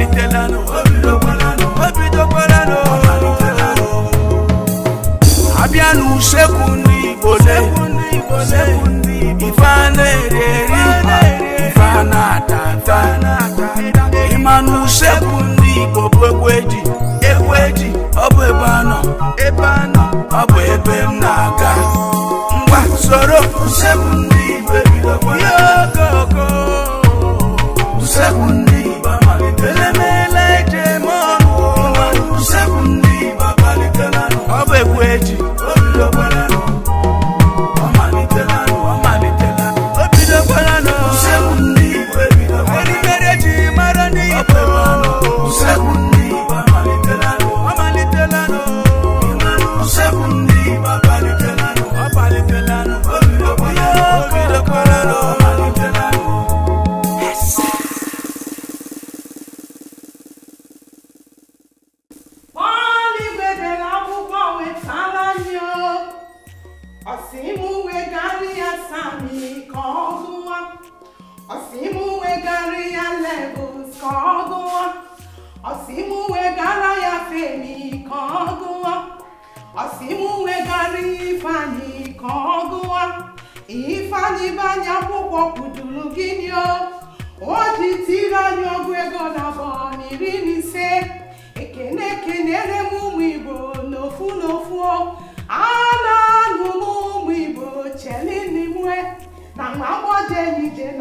Italiano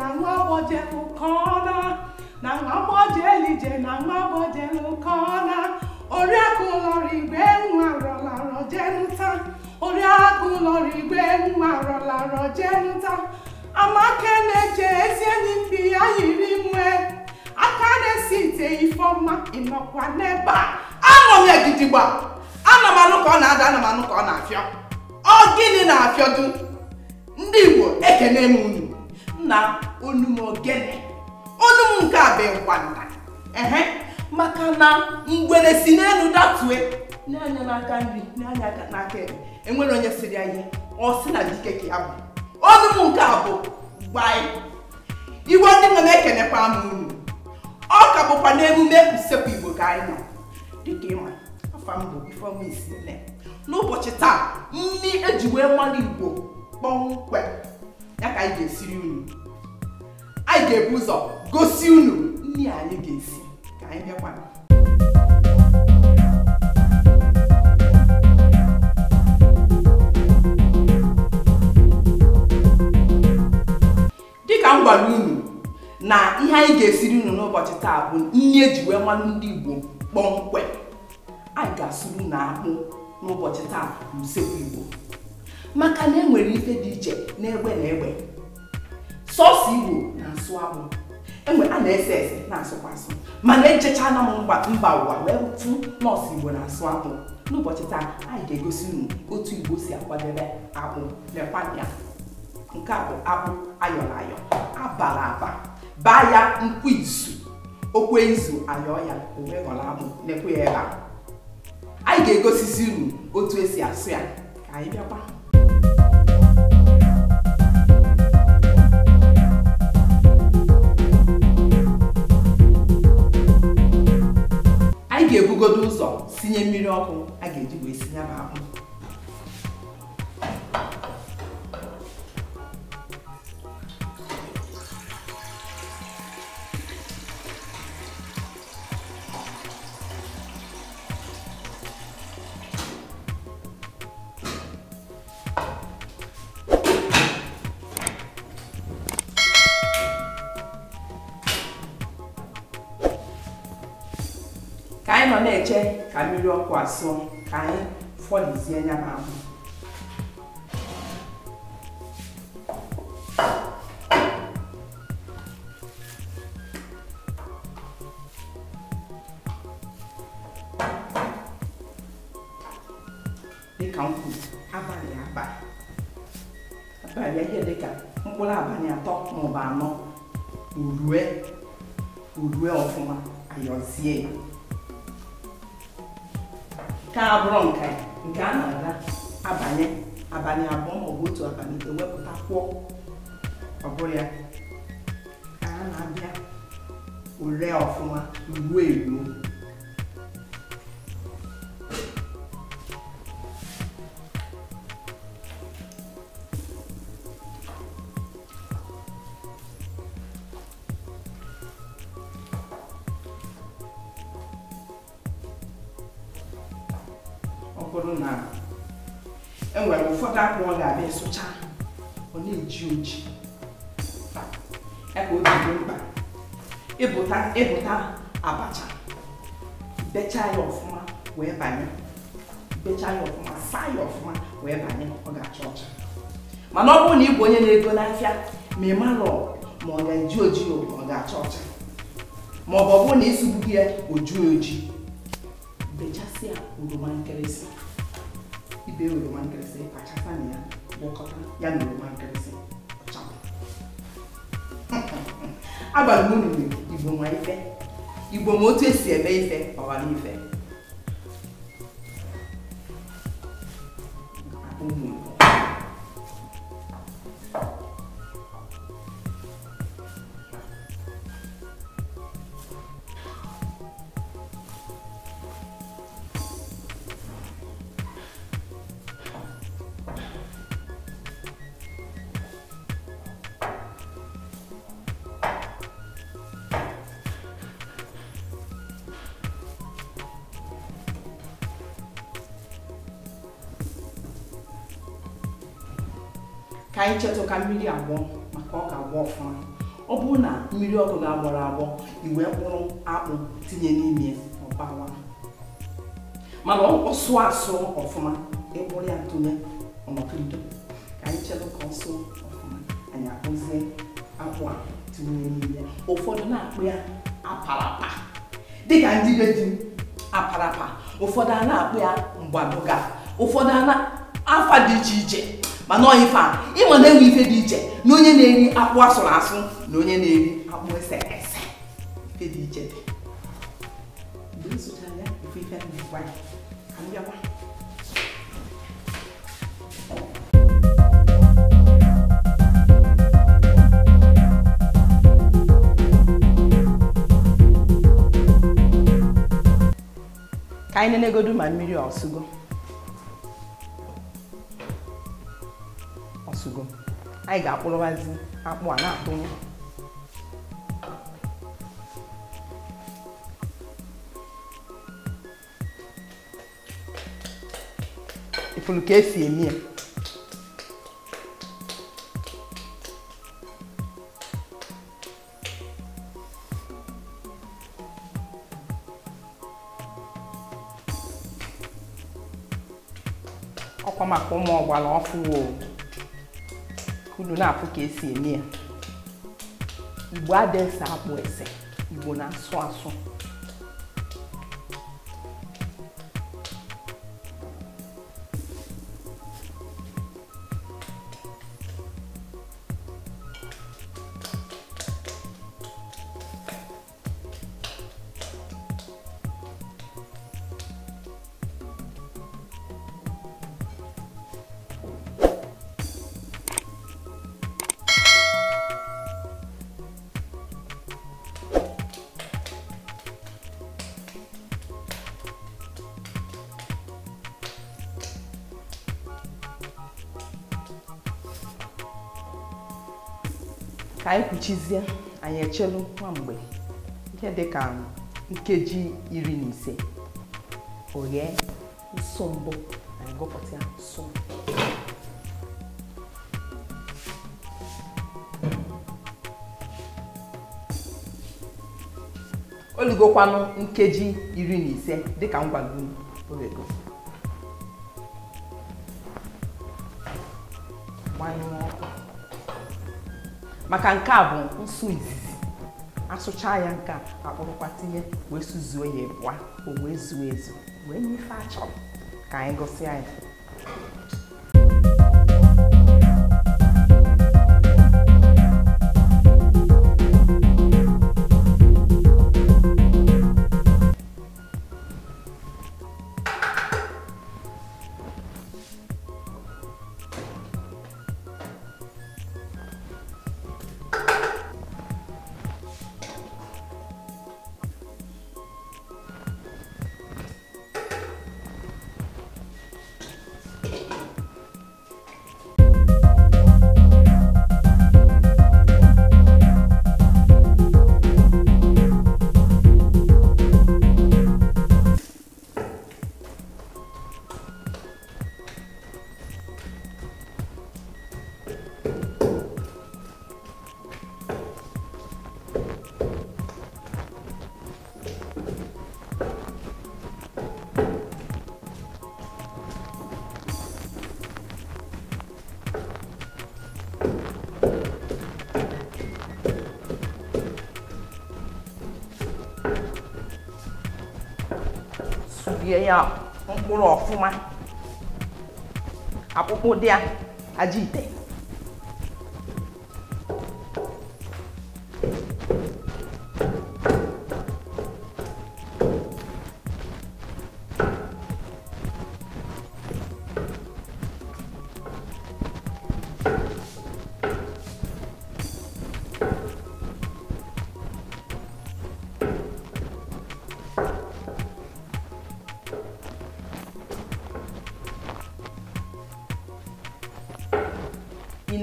na nwa gbojelụ na nwa gbojelụ ije na nwa gbojelụ kọna oriakụ ụlọrụ nwa rọlarọ jenụta oriakụ nwa rọlarọ jenụta amaka na-eche ezi enyi mpi ya yiri nwe aka na-esi ite ifeọma ịnọkwa n'ebe a anọ m egidigba ana m anụ ka ọ na-ada ana m anụ ka ọ na-afịọ ọ gịnị na-afịọdu ndị Igbo ekene m unu na onum ogene nke a bụ ngwanda ehe maka na ngwere si n'elu datue na-anya n'aka nri na-anya n'aka ebe enwere onye siri anyị ọ sị na dike ka ya bụ onum nke a bụ gbai igwe ndị nwe na-ekenekwa m unu ọ ka bụkwa n'emume usekwu igbo ka anyị nọ dịka ịma afa m bụ ifeọma n'ụbọchị taa nri eji wee mara igbo kpọmkwem ya ka anyị ga-esiri unu anyị ga-ebu ụzọ gosi unu nri anyị ga-esi ka anyị bịakwa dịka m unu na ihe anyị ga-esiri unu n'ụbọchị taa bụ nri eji wee mmanụ ndị Igbo kpọmkwem anyị ga-asụrụ unu akpụ n'ụbọchị taa n'usekwu Igbo maka na e nwere ike dị iche n'egbe na egbe sọọsụ igbo na-asụ akpụ enwe a na-ese ese na-asụkwa asụ mana ejechana m mba ụwa wee tụ nọọsụ igbo na-asụ akpụ n'ụbọchị taa anyị ga-egosi unu otu igbo si akwadebe akpụ lekwana nke a bụ akpụ ayọrọ ayọ abala aba baa ya nkwụ izu okwe izu ayọọ ya owe ghọrọ akpụ lekwe ya ebe anyị ga-egosisi unu otu esi asụ ya ka anyị bịakwa ga-ebugodo ụzọ sinye mmiri ọkụ a ga-eji wee sinye m akpụ na-eche ka mmiri ọkụ asụọ ka anyị fọlizie anya ma ahụ dịka m kwuru abalị abalị abalị ihe dịka mkpụrụ abalị atọ maọbụ anọ urue urue ọfụma ayọzie ka abụrụ nka nke a na-aga abanye abalị abụọ ma ọ bụ otu abalị ewepụta kwụọ ọ bụrụ ya ka a na-abịa ore ọfụma ruo eruo mba ịbụta abacha becha ya ọfụma wee banye becha ya ọfụma saa ya ọfụma wee banye ọ ga-acha ọcha mana ọ bụrụ na ị bụ onye na-ego n'afịa ma ị mara ma ọ ga-eji oji ọ ga-acha ọcha ma ọ bụ ọ bụrụ na ịsụgbughị ya oju oji bechasịa oroma ibe oroma nkịrịsị kpachasa na ya gwakọta ya na oroma nkịrịsị abalị m ruru igbo nwa ife igbo ma otu esi eme ife ọghara ife ụmụ ka anyị cheta ka mmiri agbọ maka ọ ga-agbọ ọfụma ọ bụrụ na mmiri ọkụ ga-agbọrọ agbọ iwe mkpụrụ akpụ tinye n'ime ọbawa mana ọ sụọ asụ ọfụma ịkpụrụ ya tụnye ọnọkirido ka anyị cheta ka ọsụ ọfụma anyị akpụzie akpụ a tinye n'ime ụfọdụ na-akpụ ya apalapa dịka ndị be ji apalapa ụfọdụ a na-akpụ ya mgbadoga ụfọdụ afa dị iche iche mana ọ ife a ịma na enwe ife dị iche na onye na-eri akpụ asụrụ asụ na onye na-eri akpụ ese ese ife dị iche dị mgbe anyị ya na-egwa ya ka m bịakwa ka anyị nenegodu ma mmiri ọsụgo anyị ga-akpụrụwazi akpụ a na-akpụnye ifuru ka esi eme ya ọkwa maka ụmụ ọgbara ọfụwo Nou nan apou kesi e mi an. I wade sa apou e se. I wona swan swan. anyị kwuchizie anyị echelu nwa mgbe ihe dị ka nkeji iri na ise oghee nsụ mbụ anyị gụpụta nsụ olugokwanụ nkeji iri na ise dịka ngwago orego gbanyụọ ọkụ maka nke a bụ nsu izizi asụcha ya nke akpụrụkwa tinye wee zuo ya ịbụa o wee zuo ezu wee nyefe achọrọ ka anyị gụsịa ya ya mkpụrụ ọfụma akpụkpụ dị a aja ite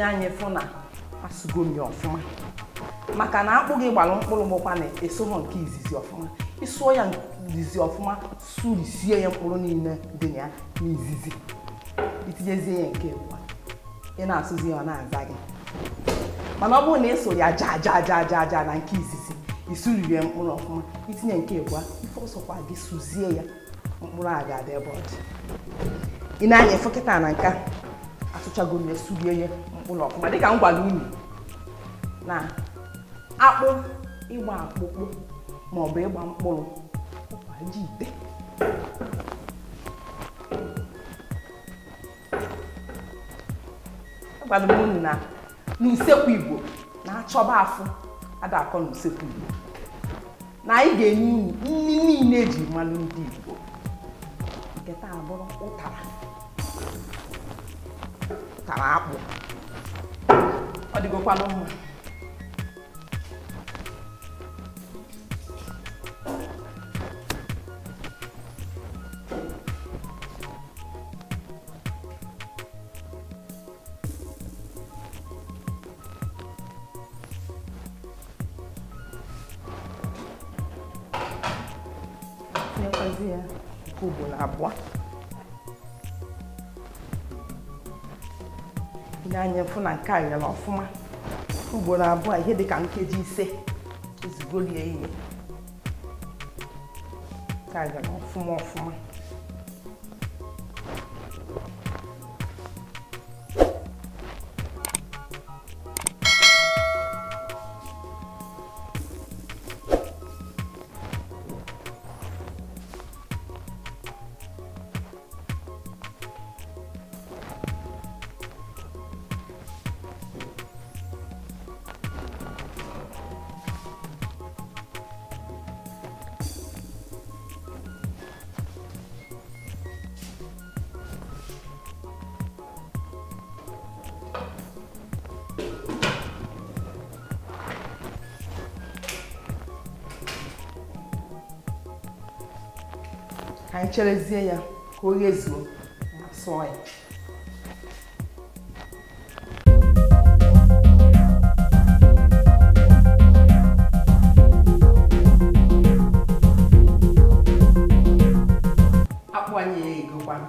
ile anya fụ na asụgo m ya ọfụma maka na akpụ gị gbalụ mkpụrụ mụkwa na-esoghọ nke izizi ọfụma ịsụọ ya izizi ọfụma surisie ya mkpụrụ niile dị na ya n'izizi itinyezie ya nke ị na-asụzi ya ọ na-aza gị mana ọ bụrụ na ịso ya ja ja ja ja ja na nke izizi isuriri ya mkpụrụ ọfụma itinye nke ịbụa ife ọsọkwa gị sụzie ya mkpụrụ a ga-adị ebe ọ dị ị na-anya ịfụ kịta na nka asụchago m ya surie ya ọfụla ọfụma dịka m gwara unu na akpụ ịgba akpụkpụ maọbụ ịgba mkpụrụ ọkwa ji ite agwara e m unu na n'usekwu igbo na-achọba afụ adakọ n'usekwu igbo na anyị ga-enye unu nri niile eji mmanụ ndị igbo nke taa bụrụ ụtara ụtara akpụ ọ dịgokwanụ mma tinyekwazị ya nke ugboro abụọ anya fụ na nke a ọfụma ugboro abụọ ihe dị ka nkeji ise ezigbo rie ihe nke a ọfụma ọfụma anyị cherezie ya ka o ghezuo ma sụọ ya akpụ anyị egokwana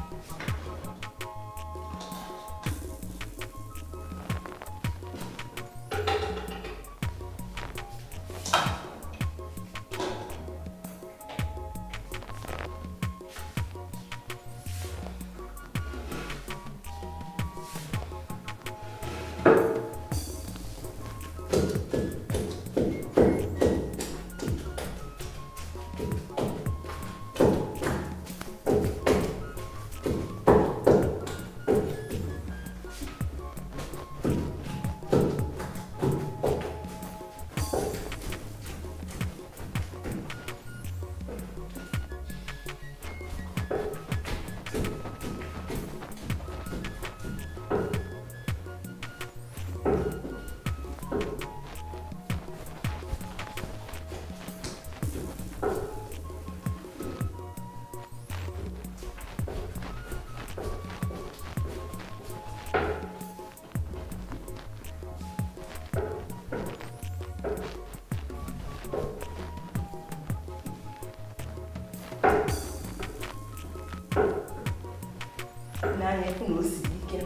na o siri ike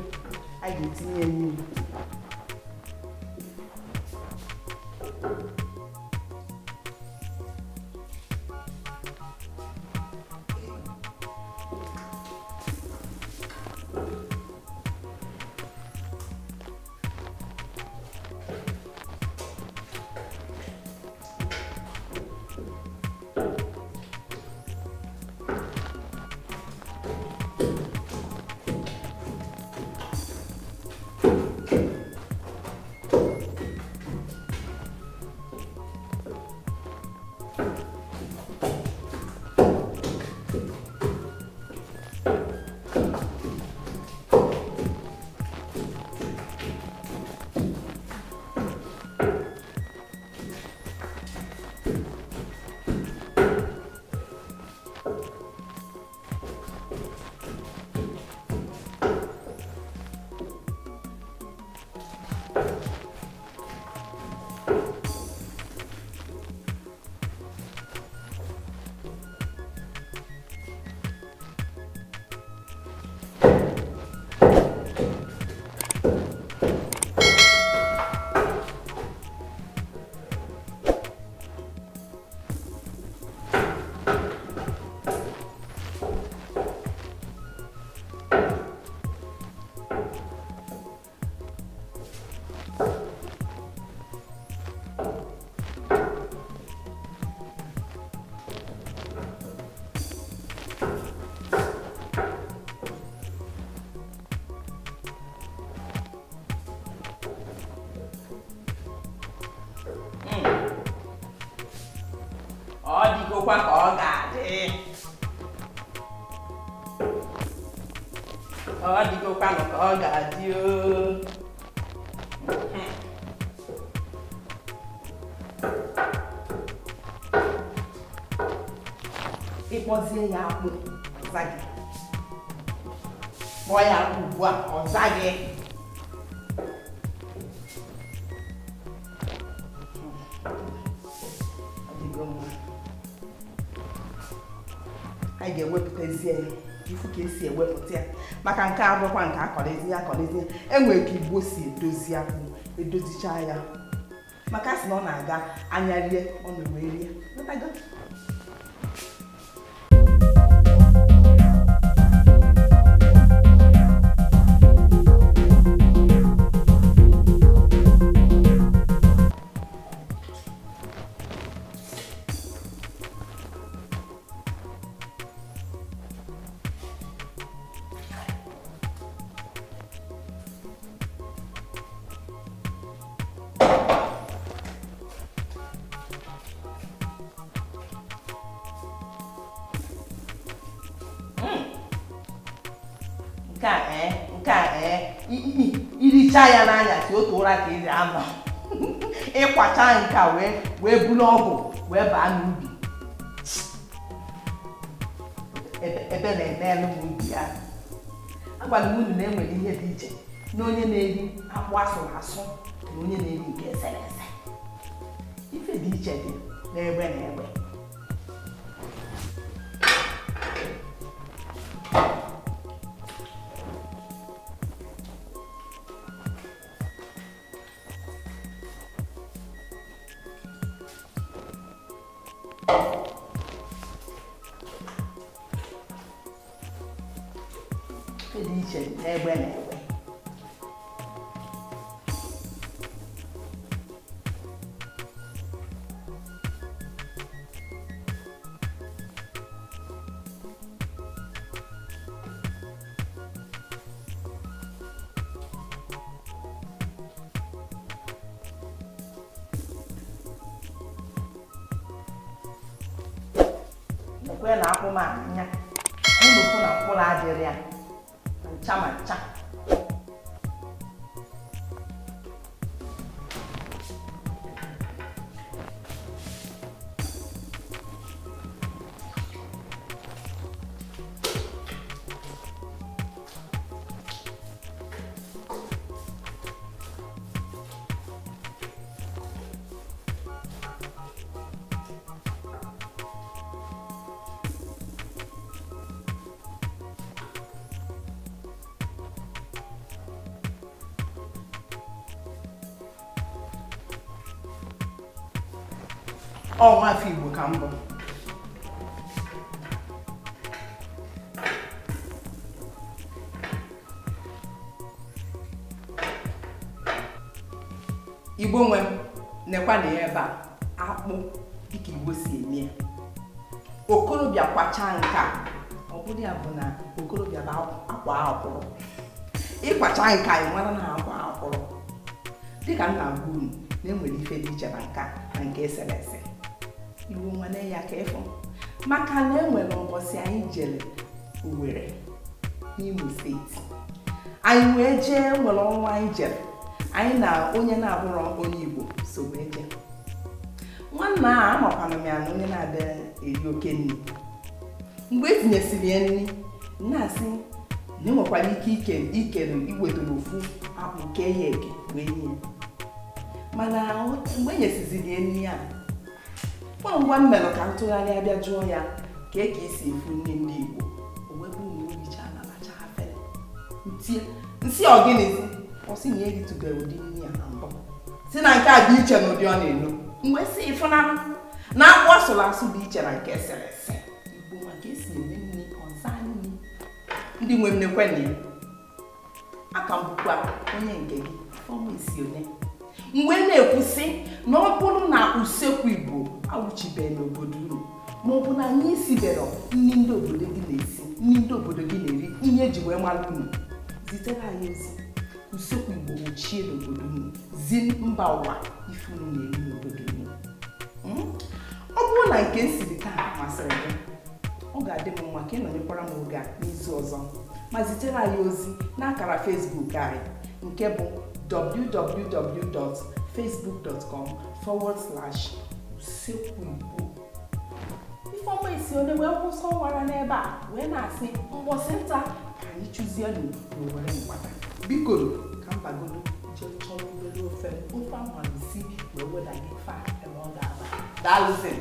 a ga-etinye mmiri qua cỏ cả đi ờ đi cô qua cỏ cả chưa e pode ya ku zage boya ku wa on zage emezie ifu ka esi ewepụta ya maka nke abụkwa nke akọlizi ya akọrọezi ya enwere e ka igbo si edozi akpụ ya maka sị na ọ na-aga anya rie ọ na-ewee rie ịkwacha nke a wee wee buru ọgwụ wee baa n'ubi ebe na-eme n'ubi ya agwara m unu na enwere ihe dị iche na onye na-eri akpụ na asụ na onye na-eri nke eserese ife dị iche dị n'egbe na egbe kwe na akwụ m anya ụlọkwu na mkpụrụ adịrị ya ncha ma ncha ọ nwafọ Igbo ka mbụ Igbo nwe m nekwa na ya ebe a akpụ dịka Igbo si eme ya okorobịa kwachaa nke a ọ bụrụ ya bụ na okorobịa bụ akwa akwụrụ ịkwachaa nke a ị na akwa akwụrụ dịka nna m na-enwere ife dị iche na nka na nke eserese nwanne ya ka ịfụ maka na enwere ụbọchị anyị jere Owerri n'Imo steeti anyị wee jee nwere ọnwa anyị jere anyị na onye na-abụrụ onye Igbo so wee jee nwanna a amakwana m ya na onye na-abịa eri oke nri mgbe etinyesiri ya nri na-asị na enwekwara ike ikere iwetara ofu akpụ kee ya eke wee nye mana mgbe enyesiziri ya nri a ngwa ngwa m mere ka ntụgharịa bịa jụọ ya ka e ka esi efu nne nne Igbo nsị ọgịnịzi ọsị na eritụbe e ụdị nri a na mbụ si na nke a dị iche na ụdị ọ na-elo mgbe si ịfụnanụ na akpụ asụrụ asụ dị iche na nke eserese Igbo maka esi eme nri ọza nri ndị nwe mmekwe na ya aka mbụkwa onye nke gị ọmụ isi one mgbe na-ekwu sị na ọ bụrụ na usekwu igbo awụchibeghị n'obodo unu ma ọ bụ na anyị isibere nri ndị obodo gị na-esi nri ndị obodo gị na-eri ihe eji wee mara unu zitere anyị ozi usekwu igbo ochie n'obodo unu zi mba ụwa ife unu na-eri n'obodo unu hmm? ọ bụrụ na nke siri taa masịrị gị ọ ga-adị m mma ka ịnọnyekwara m oge n'izu ọzọ ma zitere anyị ozi n'akara Facebook anyị nke bụ www.facebook.com forward slash usekwu Ifeoma Isione wee kwụsọ ụwara n'ebe a wee na-asị mbọsị nta ka anyị chụzienụ n'owere mgbada biko ka mbagodo jee chọrọ obere ofe ofe amalisi wee weda gị fa ebe ọ ga-aba daalụzi